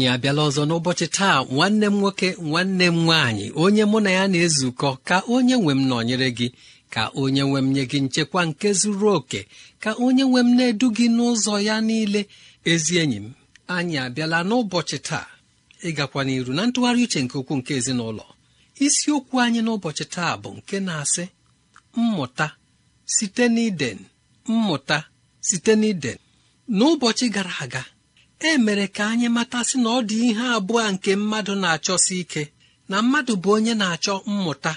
anyị abịala ọzọ n'ụbọchị taa nwanne m nwoke nwanne m nwaanyị onye mụ na ya na-ezukọ ka onye nwe m nọnyere gị ka onye nwe m nye gị nchekwa nke zuru oke ka onye nwe m na-edu gị n'ụzọ ya niile ezi enyi m anyị abịala n'ụbọchị taa ịgakwa n'iru na ntụgharị uche nke ukwuu nke ezinụlọ isiokwu anyị n'ụbọchị taa bụ nke na-asị mmụta site n'iden mmụta site n'iden n'ụbọchị gara aga e mere ka anyị matasị na ọ dị ihe abụọ nke mmadụ na-achọsi ike na mmadụ bụ onye na-achọ mmụta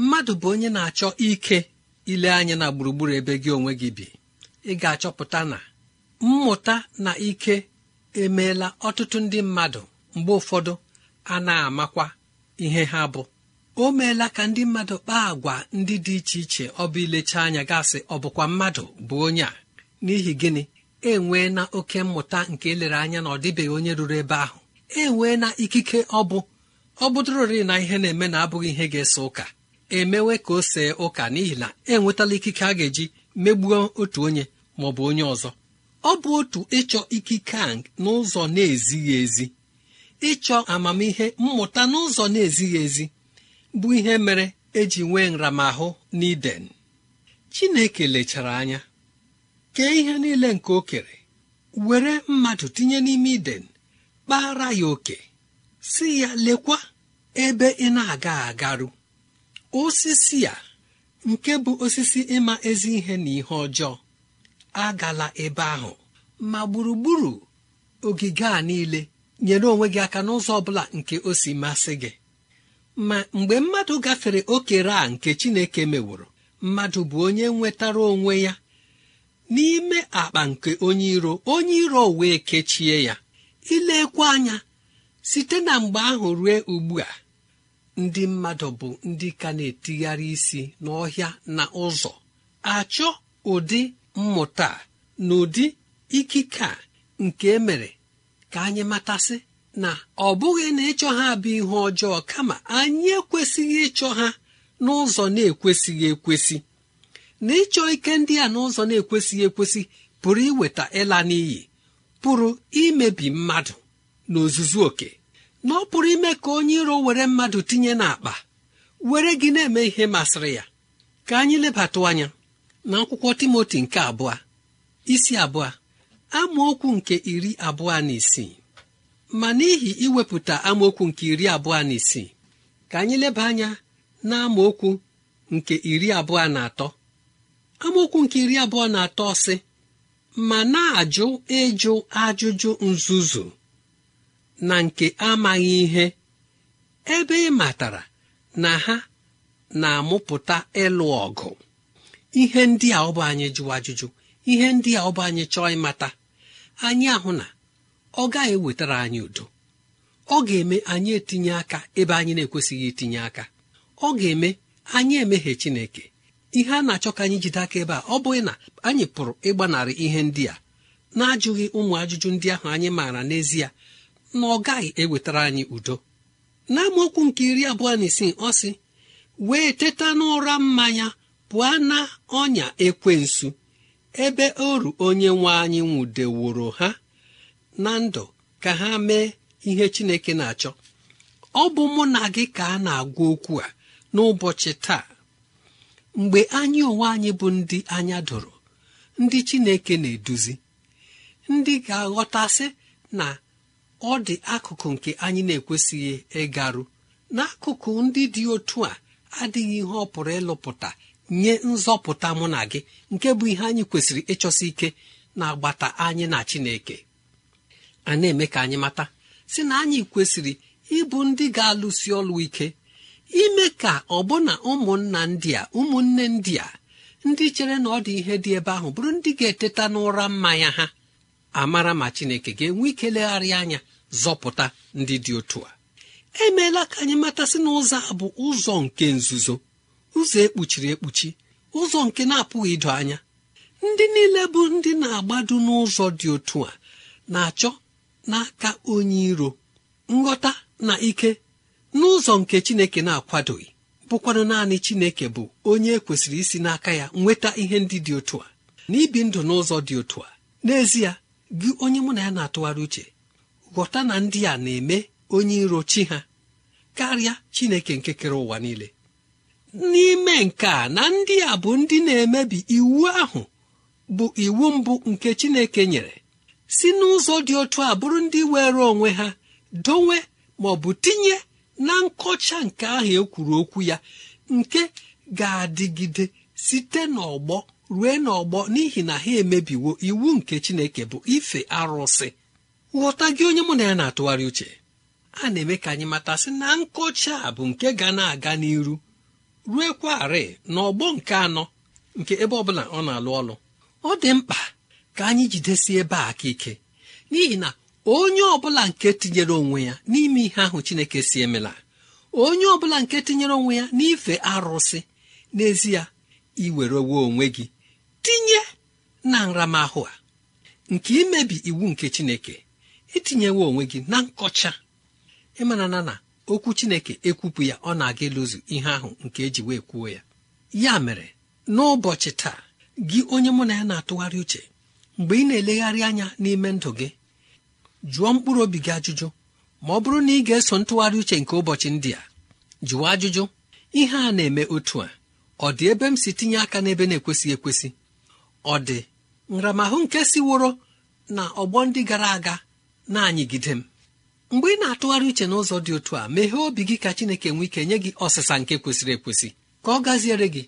mmadụ bụ onye na-achọ ike ile anya na gburugburu ebe gị onwe gị bi ị ga-achọpụta na mmụta na ike emeela ọtụtụ ndị mmadụ mgbe ụfọdụ a na-amakwa ihe ha bụ o meela ka ndị mmadụ kpaa agwa ndị dị iche iche ọ bụ ilecha anya gasị ọ bụkwa mmadụ bụ onye a n'ihi gịnị enwee na oke mmụta nke elere anya na ọ dịbeghị onye ruru ebe ahụ enwee na ikike ọ bụ ọ bụdụrorị na ihe na-eme na abụghị ihe ga-ese ụka emewe ka o see ụka n'ihi na enwetala ikike a ga-eji megbuo otu onye ma ọ bụ onye ọzọ ọ bụ otu ịchọ ikike a n'ụzọ na-ezighị ezi ịchọ amamihe mmụta n'ụzọ na-ezighị ezi bụ ihe mere eji nwee nramahụ n'iden chineke lechara anya kee ihe niile nke okere, were mmadụ tinye n'ime iden kpara ya oke si ya lekwa ebe ị na-aga agarụ osisi a nke bụ osisi ịma ezi ihe na ihe ọjọọ agala ebe ahụ ma gburugburu ogige a niile nyere onwe gị aka n'ụzọ ọbụla nke o si masị gị ma mgbe mmadụ gafere okere a nke chineke meworo mmadụ bụ onye nwetara onwe ya n'ime akpa nke onye iro onye iro wee kechie ya ilekwa anya site na mgbe ahụ rue ugbu a ndị mmadụ bụ ndị ka na-etigharị isi n'ọhịa na ụzọ achọ ụdị mmụta na ụdị ikike a nke emere ka anyị matasị na ọ bụghị na ịchọ ha bụ ihe ọjọọ kama anyị ekwesịghị ịchọ ha n'ụzọ na-ekwesịghị ekwesị na ịchọ ike ndị a n'ụzọ na-ekwesịghị ekwesị pụrụ iweta ịla n'iyi pụrụ imebi mmadụ n'ozuzu oke na ọ pụrụ ime ka onye iro were mmadụ tinye n'akpa were gị na-eme ihe masịrị ya ka anyị lebatụ anya na akwụkwọ timoti nke abụọ isi abụọ amaokwu nke iri abụọ na isii ma n'ihi iwepụta amaokwu nke iri abụọ na isii ka anyị leba anya na amaokwu nke iri abụọ na atọ amaokwu nke iri abụọ na atọ ọsị ma na-ajụ ịjụ ajụjụ nzuzu na nke amaghị ihe ebe ị matara na ha na-amụpụta ịlụ ọgụ ihe ndị a ọbụ anyị jụ ajụjụ ihe ndị a ọbụ anyị chọọ ịmata anyị ahụ na ọ gaghị ewetara anyị udo ọ ga-eme anyị etinye aka ebe anyị na-ekwesịghị itinye aka ọ ga-eme anyị emeghe Chineke ihe a na-achọ ka anyị jide aka ebe a ọ bụghị na anyị pụrụ ịgbanarị ihe ndị a na-ajụghị ụmụ ajụjụ ndị ahụ anyị maara n'ezie na ọ gaghị ewetara anyị udo n'amaokwu nke iri abụọ na isii ọ sị wee teta n'ụra mmanya pụọ na ọnya ekwensu ebe oru onye nwe anyị nwụdeworo ha na ndụ ka ha mee ihe Chineke na-achọ ọ bụ mụ na gị ka a na-agwa okwu a n'ụbọchị taa mgbe anyị onwe anyị bụ ndị anya doro ndị chineke na-eduzi ndị ga-aghọtasị na ọ dị akụkụ nke anyị na-ekwesịghị ịgarụ n'akụkụ ndị dị otu a adịghị ihe ọ pụrụ ịlụpụta nye nzọpụta mụ na gị nke bụ ihe anyị kwesịrị ịchọsi ike na agbata anyị na chineke a na-eme ka anyị mata si na anyị kwesịrị ịbụ ndị ga-alụsi ọlụ ike ime ka ọbụna ụmụnna ndị a ụmụnne ndị a ndị chere na ọ dị ihe dị ebe ahụ bụrụ ndị ga-eteta n'ụra mmanya ha amara ma chineke ga-enwe ike legharị anya zọpụta ndị dị otu a emeela ka anyị matasị na ụzọ a bụ ụzọ nke nzuzo ụzọ ekpuchiri ekpuchi ụzọ nke na-apụghị ido anya ndị niile bụ ndị na-agbado n'ụzọ dị otu a na-achọ n'aka onye iro nghọta na ike n'ụzọ nke chineke na-akwadoghị bụkwanụ naanị chineke bụ onye e kwesịrị isi n'aka ya nweta ihe ndị dị otu a na ibi ndụ n'ụzọ dị otu a n'ezie gị onye mụ na ya na-atụgharị uche ghọta na ndị a na-eme onye iro chi ha karịa chineke nke kere ụwa niile n'ime nke a na ndị a bụ ndị na-emebi iwu ahụ bụ iwu mbụ nke chineke nyere si n'ụzọ dị otu a bụrụ ndị were onwe ha dowe ma ọ bụ tinye na nkọcha nke ahụ e kwuru okwu ya nke ga-adịgide site n'ọgbọ rue n'ọgbọ n'ihi na ha emebiwo iwu nke chineke bụ ife arụsị ghọta gị onye mụ na ya na-atụgharị uche a na-eme ka anyị matasị na nkọcha a bụ nke ga na-aga n'iru rue kwarị n'ọgbọ nke anọ nke ebe ọ bụla ọ na-alụ ọlụ ọ dị mkpa ka anyị jidesie ebe a aka ike n'ihi na onye ọbụla nke tinyere onwe ya n'ime ihe ahụ chineke si emela onye ọbụla nke tinyere onwe ya n'ife arụsị n'ezie iwerewe onwe gị tinye na nramahụ a nke imebi iwu nke chineke itinyewo onwe gị na nkọcha ịmana na okwu chineke ekwupụ ya ọ na-aga ịlụzu ihe ahụ nke eji wee kwuo ya ya mere n'ụbọchị taa gị onye mụ na ya na-atụgharị uche mgbe ị na-elegharị anya n'ime ndụ gị jụọ mkpụrụ obi gị ajụjụ ma ọ bụrụ na ị ga-eso ntụgharị uche nke ụbọchị ndị a jụọ ajụjụ ihe a na-eme otu a ọ dị ebe m si tinye aka n'ebe na-ekwesịghị ekwesị ọ dị nramahụ nke siworo na ọgbọ ndị gara aga na-anyịgide m mgbe ị na-atụgharị uche n'ụzọ dị otu a meghee obi gị ka Chineke nwee ike nye gị ọsịsa nke kwesịrị ekwesị ka ọ gaziere gị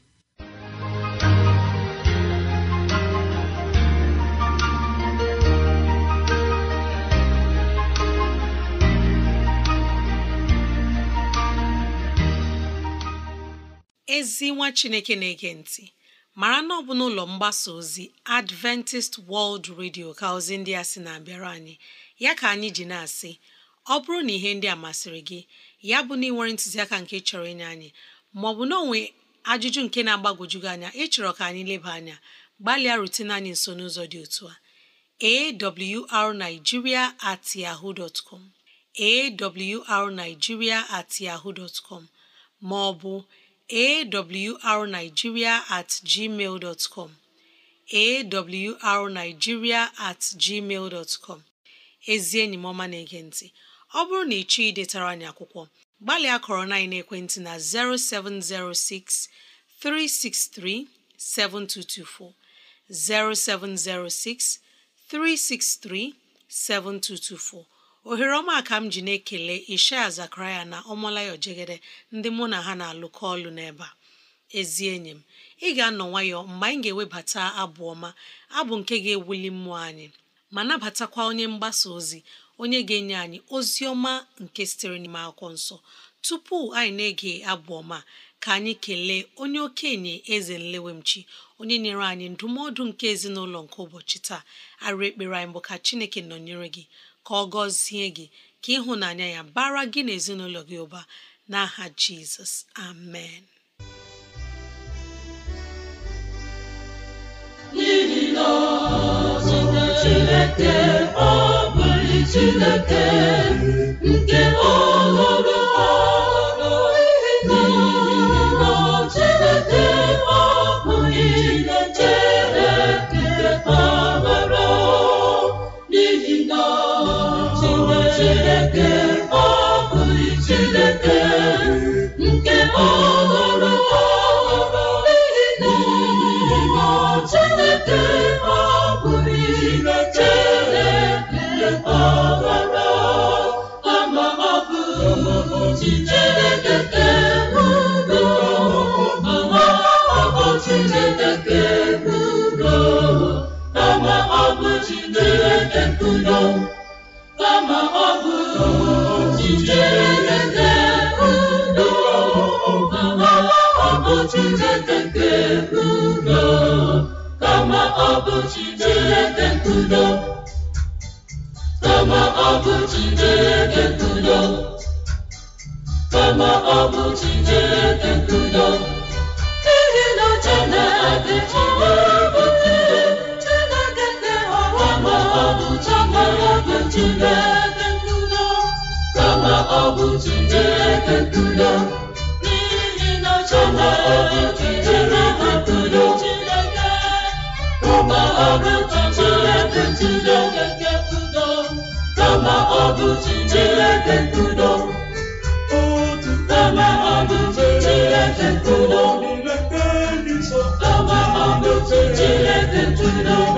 ezi nwa chineke na-ege ntị mara na ọ bụ n'ụlọ mgbasa ozi adventist world radio ka ozi ndị a sị na-abịara anyị ya ka anyị ji na-asị ọ bụrụ na ihe ndị a masịrị gị ya bụ na ịnwere ntụziaka nke chọrọ ịnye anyị maọbụ na onwe ajụjụ nke na agbagojugị anya ịchọrọ ka anyị leba anya gbalịa rutene anyị nso n'ụzọ dị otu a arigiria at yahoo dot com at com maọbụ awrnigeria at gmail dot com awrnigeria at gmail dot com ezi enyi m ọma na-ege ntị ọ bụrụ na ị chọọ idetara anyị akwụkwọ gbalịa kọrọ na ekwentị na 0706 363 7224 0706 363 7224 ohere ọma ka m ji na-ekele ishaya zakaraya na ọmalayo jegede ndị mụ na ha na-alụkọ ọlụ n'ebe a ezi enyi m ị ga-anọ nwayọ mgbe anyị ga-ewebata abụ ọma abụ nke ga-ewuli mmụọ anyị ma nabatakwa onye mgbasa ozi onye ga-enye anyị ozi ọma nke sitere n'ime akwụkwọ nsọ tupu anyị na-ege abụ ọma ka anyị kelee onye okenye eze nlewemchi onye nyere anyị ndụmọdụ nke ezinụlọ nke ụbọchị taa arụ ekpere anyị bụ ka chineke nọnyere gị ka ọ gọzie gị ka ịhụnanya ya bara gị n'ezinụlọ gị ụba n'aha Jizọs, amen Chineke bụ Chineke ntudo kama ọ bụ Chineke ntudo kama n'ihi na ọ bụ ọ bụ Chineke nke udo kama ọ bụ Chineke nke udo kama ọgụ bụ Chineke udo kama ọgụ udo kama ọgụ udo kama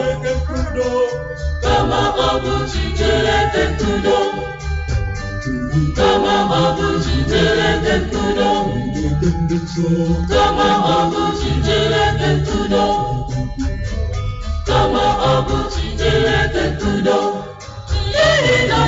ọgụ udo kama ọgụ udo ọ bụ Chineke tudo, n'ihi na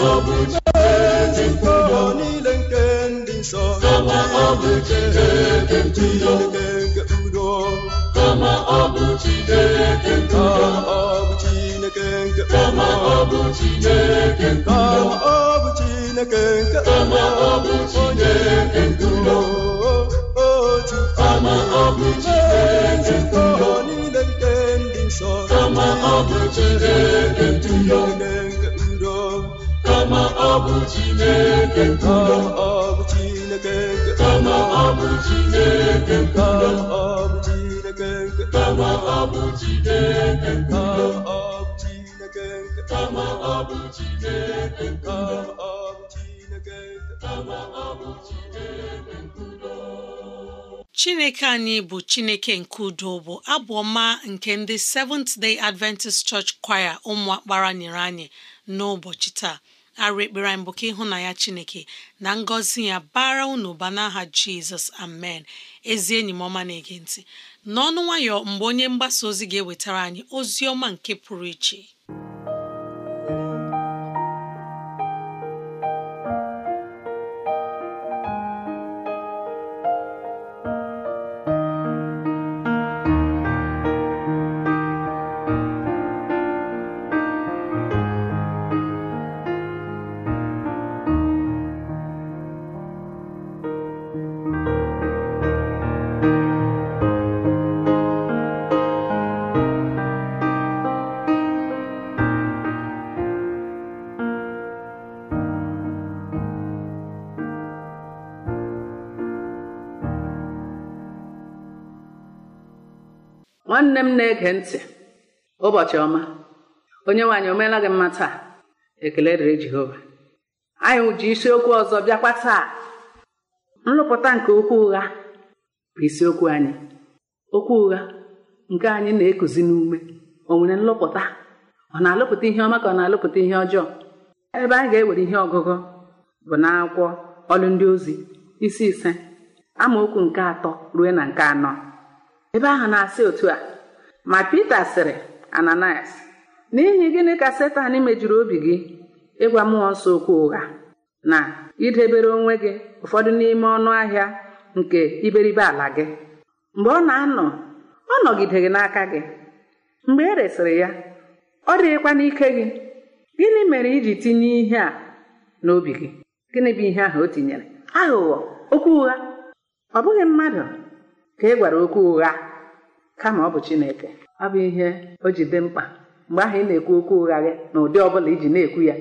ọ bụ Chineke niile nke ndị nsọ kama ọ bụ Chineke ntuyo nke udo kama ọ bụ Chineke ntuyo ọ bụ Chineke nke kama ọ bụ Chineke ntuyo kama ọ bụ Chineke nke kama ọ bụ Chineke kama ọ bụ ndị nsọ kama ọ bụ Chineke Chineke anyị bụ chineke nke udo bụ abụ ọma nke ndị Seventh Day Adventist Church Choir ụmụ akpara nyere anyị n'ụbọchị taa arụ ekpere anyị bụ ka ya chineke na ngọzi ya bara unu ụba n'aha jizọs amen ezi enyi m ọma na-ege ntị n'ọnụ nwayọ mgbe onye mgbasa ozi ga-ewetara anyị ozi ọma nke pụrụ iche nwanne m na-ege ntị ụbọchị ọma onye nwaanyị o meela gị mma taa ekele dịrị Jehova anyị ji isiokwu ọzọ bịakwa taa nrụpụta nke okwu ụgha bụ isiokwu anyị okwu ụgha nke anyị na-ekuzi n'ume o nwere nlụpụta ọ na-alụpụta ihe ọma ka ọ na-alụpụta ihe ọjọọ ebe anyị ga-ewere ihe ọgụgụ bụ n'akwụkwọ ọlụ ndị ozi isi ise amaokwu nke atọ ruo na nke anọ ebe ahụ na-asị otu a ma Pita sịrị Ananias n'ihi gịnị ka Setan mejuru obi gị ịgwa mmụọ nsọ okwu ụgha na idebere onwe gị ụfọdụ n'ime ọnụ ahịa nke iberibe ala gị mgbe ọ na-anọ ọ nọgideghị n'aka gị mgbe e resịrị ya ọ dịghịkwa n'ike gị gịnị mere iji tinye ihe a n'obi gị gịnị bụ ihe ahụ o tinyere aghụghọ okwu ụgha ọ bụghị mmadụ ka ị e gwara okwu ụgha kama ọ bụ Chineke ọ bụ ihe o ji dị mkpa mgbe ahụ ị na-ekwu okwu ụgha gị na ụdị ọ bụla iji na-ekwu ya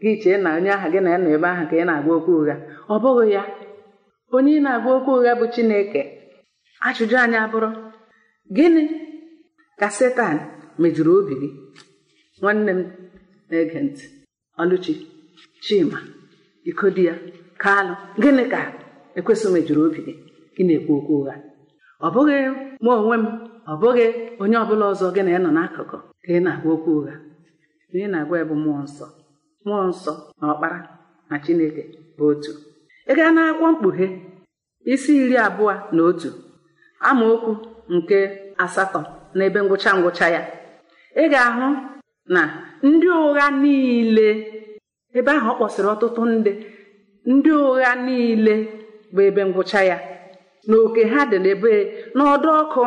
gị chee na onye ahụ gị na ya nọ ebe ahụ ka ị na-agwa okwu ụgha ọ bụghị ya onye ị na-agwa okwu ụgha bụ Chineke ajụjụ anyị abụrụ gịnị ka Setan mejuru obi gị nwanne m na-ege ntị Ọlụchi Chima ya Kalụ gịnị ka ekwesịghị mejuru obi gị ị na-ekwu okwu ụgha ọ bụghị mụ onwe m ọ bụghị onye ọbụla ọzọ gị na nọ n'akụkụ ka ị na-agwa okwu ụgha ị na-agwa ya mmụọ nsọ mmụọ nsọ na ọkpara na chineke bụ otu ị gaa n'akwụkwọ mkpughe isi iri abụọ na otu amaokwu nke asatọ na ebe ngwụcha ngwụcha ya ị ga-ahụ na ndị ụgha niile ebe ahụ ọ kpọsịrị ọtụtụ ndị ndị ụgha niile bụ ebe ngwụcha ya na oke ha dị n'ebe n'ọdụ ọkụ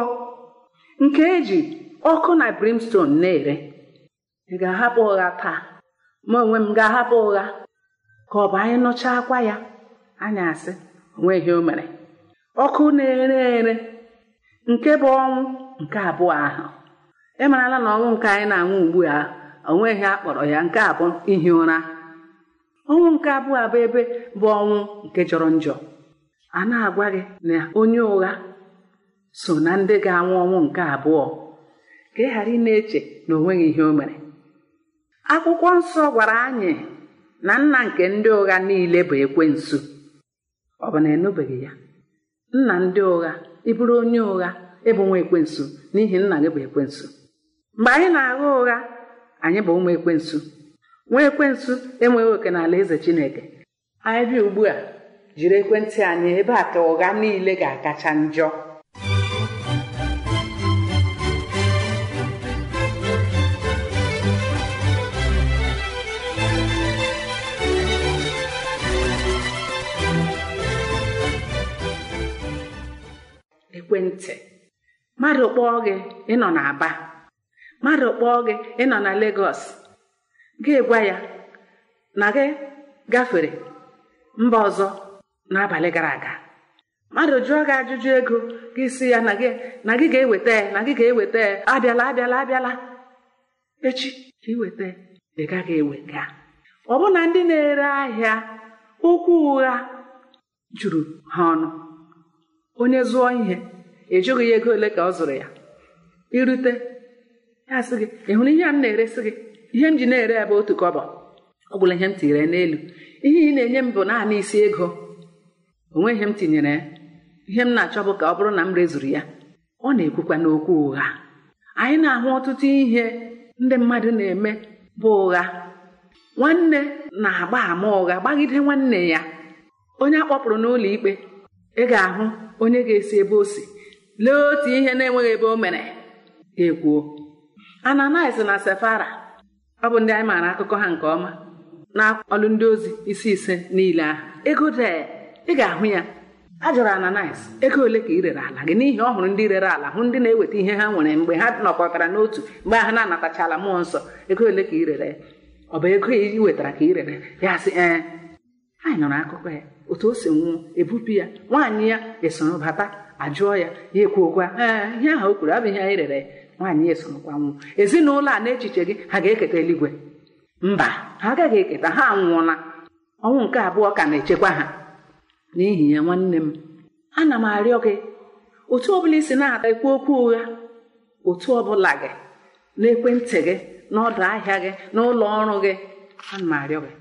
nke eji ọkụ na brimstone na-ere ị ga-ahapụ ụgha taa ma onwe m ga-ahapụ ụgha ka ọ bụ anyị nụcha akwa ya anya asị onweghị o mere ọkụ na-ere ere nke bụ ọnwụ nke abụọ ahụ ịmarala na ọnwụ nke anyị na-anwụ ugbu a onweghị akpọrọ ya nke abụọ ihi ụra ọnwụ nke abụọ abụ ebe bụ ọnwụ nke jọrọ njọ a na-agwa gị na onye ụgha so na ndị ga-anwụ ọnwụ nke abụọ ka ị ghara ị na-eche na o nweghị ihe o mere akwụkwọ nsọ gwara anyị na nna nke ndị ụgha niile bụ ekwensu ọ bụ na enubeghị ya nna ndị ụgha ịbụrụ onye ụgha ịbụ nwa ekwensu n'ihi nna gị bụ ekwensu mgbe anyị na-agha ụgha anyị bụ ụmụ ekwensu nwa ekwensu enweghị oke n'ala eze chineke anyị bịa ugbu a jiri ekwentị anyị ebe a ka ụgha niile ga-akacha njọ ekwentị mmadụ kpọọ gị ịnọ n'Aba mmadụ kpọọ gị ịnọ na Legọs gị gwa ya na gị gafere mba ọzọ n'abalị gara aga mmadụ jụọ gị ajụjụ ego gị si ya na gị ga-eweta na gị ga-eweta abịala abịala abịala echi ka iweta ị gaghị ewega ọbụna ndị na-ere ahịa ụkwụ ụgha juru ha ọnụ onye zụọ ihe ejụghị ya ego ole ka ọ zụrụ ya irute ya sị gị ị hụrụ ihe a m na-eresi gị ihe m ji na-ere ebe otu kọbọ ọ bụla ihe m tire n'elu ihe ị na-enye m bụ naanị isi ego onweghị m tinyere ihe m na-achọ bụ ka ọ bụrụ na m rezuru ya ọ na-ekwukwa n'okwu ụgha anyị na-ahụ ọtụtụ ihe ndị mmadụ na-eme bụ ụgha nwanne na-agba ama ụgha gbagide nwanne ya onye a kpọpụrụ n'ụlọ ikpe ị ga-ahụ onye ga-esi ebe o si lee otu ihe na-enweghị ebe o mere ga-ekwuo Ananias na Sefara ọ bụ ndị anyị maara akụkọ ha nke ọma na ọlụ ndị ozi isi ise niile ahụ ego dee ị ga-ahụ ya a jụrụ Ananias ego ole ka ị rere ala gị n'ihi ọ hụrụ ndị rere ala hụ ndị na-eweta ihe ha nwere mgbe ha nọkọtara n'otu mgbe ha na-anatachala mmụọ nsọ ego ole ka ị rere ọ bụ ego i wetara ka ị rere ya sị ee anyị nụrụ akụkọ ya otu o si nwụọ ebupụ ya nwaanyị ya esoro bata ajụọ ya ya ekwuokwa ee ihe ahụ o kwuru abụghị anyị rere nwaanyị ya esorokwa nwụọ ezinụlọ a n'echiche gị ha ga-eketa eluigwe mba ha agaghị eketa ha anwụọla ọnwụ nke abụọ ka na-echekwa ha n'ihi ya nwanne m ana m arịọ gị otu ọbụla isi na-ekwu okwu ụgha otu ọbụla gị n'ekwentị gị n'ọdụ ahịa gị n'ụlọ ọrụ gị ana m arịọ gị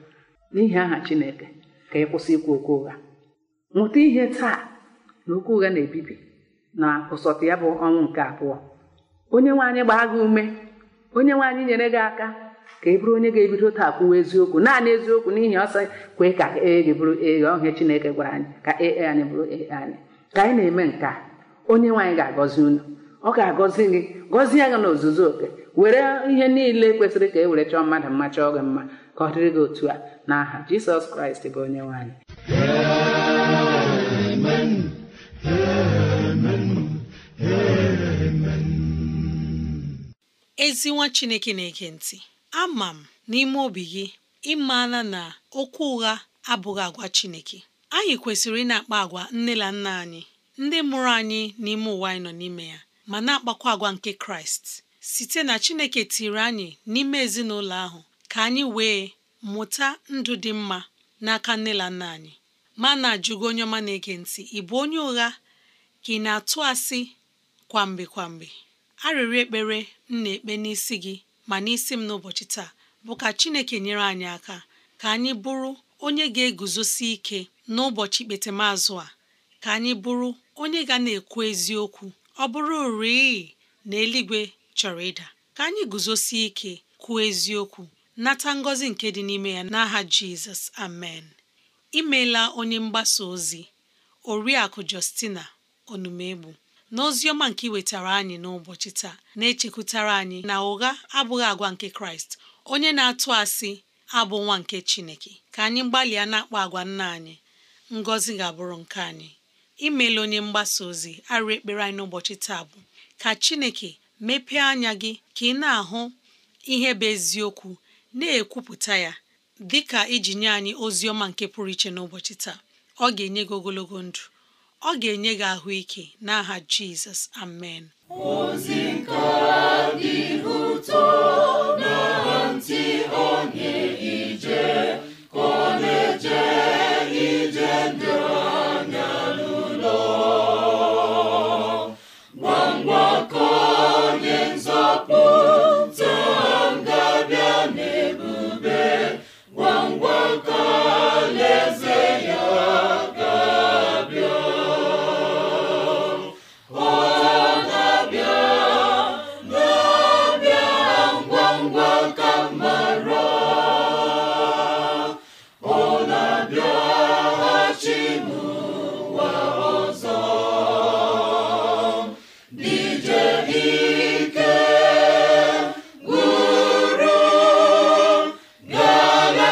n'ihi aha Chineke ka ị kwụsị ikwu okwu ụgha nwụta ihe taa na okwu ụgha na-ebibi na ụsọtụ ya bụ ọnwụ nke abụọ onye nwe anyị gbaa gị ume onye nwe anyị nyere gị aka ka e bụrụ onye ga-ebido taa kwuwa eziokwu naanị eziokwu n'ihi ọsọ kwe ka ee bụrụ ee ọhịa Chineke gwara anyị ka ee anyị bụrụ anyị ka anyị na-eme nke a onye nwaanyị ga-agọzi unu ọ ga-agọzi gị gọzie gị n'ozuzu oke were ihe niile kwesịrị ka e were chọọ mmadụ mma chọọ gị mma ka ọ dịrị gị otu a n'aha Jizọs Kraịst bụ onye nwaanyị amen ezi nwa Chineke na-ege ntị ama m n'ime obi gị ịmana na okwu ụgha abụghị agwa Chineke anyị kwesịrị ị na-akpa agwa nne na nna anyị ndị mụrụ anyị n'ime ụwa anyị nọ n'ime ya ma na-akpakwa agwa nke Kraịst site na Chineke tiri anyị n'ime ezinụlọ ahụ ka anyị wee mụta ndụ dị mma n'aka nne na nna anyị ma na-ajụgo onye ọma na-ege ntị ị bụ onye ụgha ka ị na-atụ asị kwamgbe kwamgbe arịrịọ ekpere m na-ekpe n'isi gị ma n'isi m n'ụbọchị taa bụ ka Chineke nyere anyị aka ka anyị bụrụ onye ga-eguzosi ike n'ụbọchị ikpetemazụ a ka anyị bụrụ onye ga na-ekwu eziokwu ọ bụrụ rịị na eluigwe chọrọ ịda ka anyị guzosi ike kwuo eziokwu nata ngọzi nke dị n'ime ya n'aha Jizọs amen imeela onye mgbasa ozi oriakụ Justina Onumegbu oziọma nke iwetara anyị n'ụbọchị taa na-echekwutara anyị na ụgha abụghị agwa nke kraịst onye na-atụ asị abụ nwa nke chineke ka anyị gbalịa na-akpọ agwa nna anyị ngọzi ga-abụrụ nke anyị imela onye mgbasa ozi arụ ekpere anyị n'ụbọchị taa bụ ka chineke mepee anya gị ka ị na-ahụ ihe bụ eziokwu na-ekwupụta ya dị ka iji nye anyị ozi ọma nke pụrụ iche n'ụbọchị taa ọ ga-enye gị ogologo ndụ ọ ga-enye gị ahụike n'aha Jizọs amen ozi nke dị ụtọ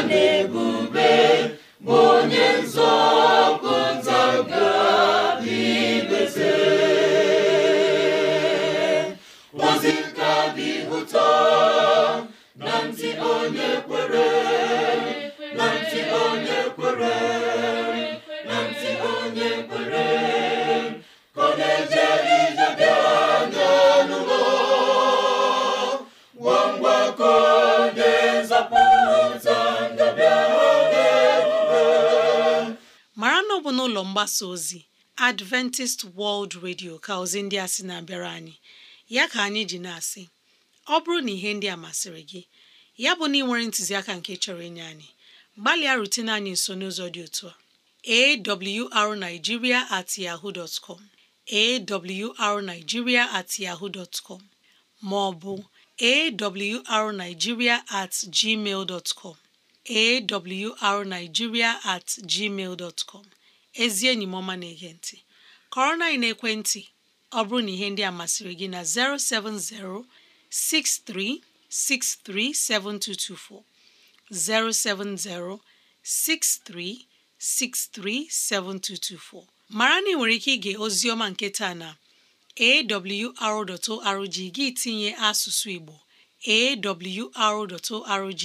na-ebube bụ onye nzọpụta ga mgbasa ozi Adventist World Radio ka ozi ndị a sị na-abịara anyị ya ka anyị ji na-asị ọ bụrụ na ihe ndị a masịrị gị ya bụ na ị nwere ntụziaka nke chọrọ inye anyị gbalịa rutene anyị nso n'ụzọ dị otu a awrnigeria at yahoo dot com at yahoo dot com ma ọ at gmail dot com at gmail dot ezi enyi m ọma na-ege ntị kọrọ na ekwentị ọ bụrụ na ihe ndị a masịrị gị na 070 mara na ị nwere ike ige oziọma nke taa na awr.org gị tinye asụsụ Igbo awr.org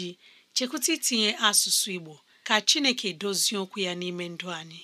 chekwụta itinye asụsụ Igbo ka Chineke dozie okwu ya n'ime ndụ anyị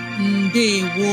Ndewo